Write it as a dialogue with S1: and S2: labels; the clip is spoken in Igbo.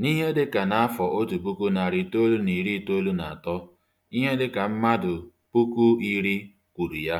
S1: N'ihe dịka n'afọ otu puku narị itoolu na iri itoolu na atọ, ihe dịka mmadụ puku iri kwuru ya.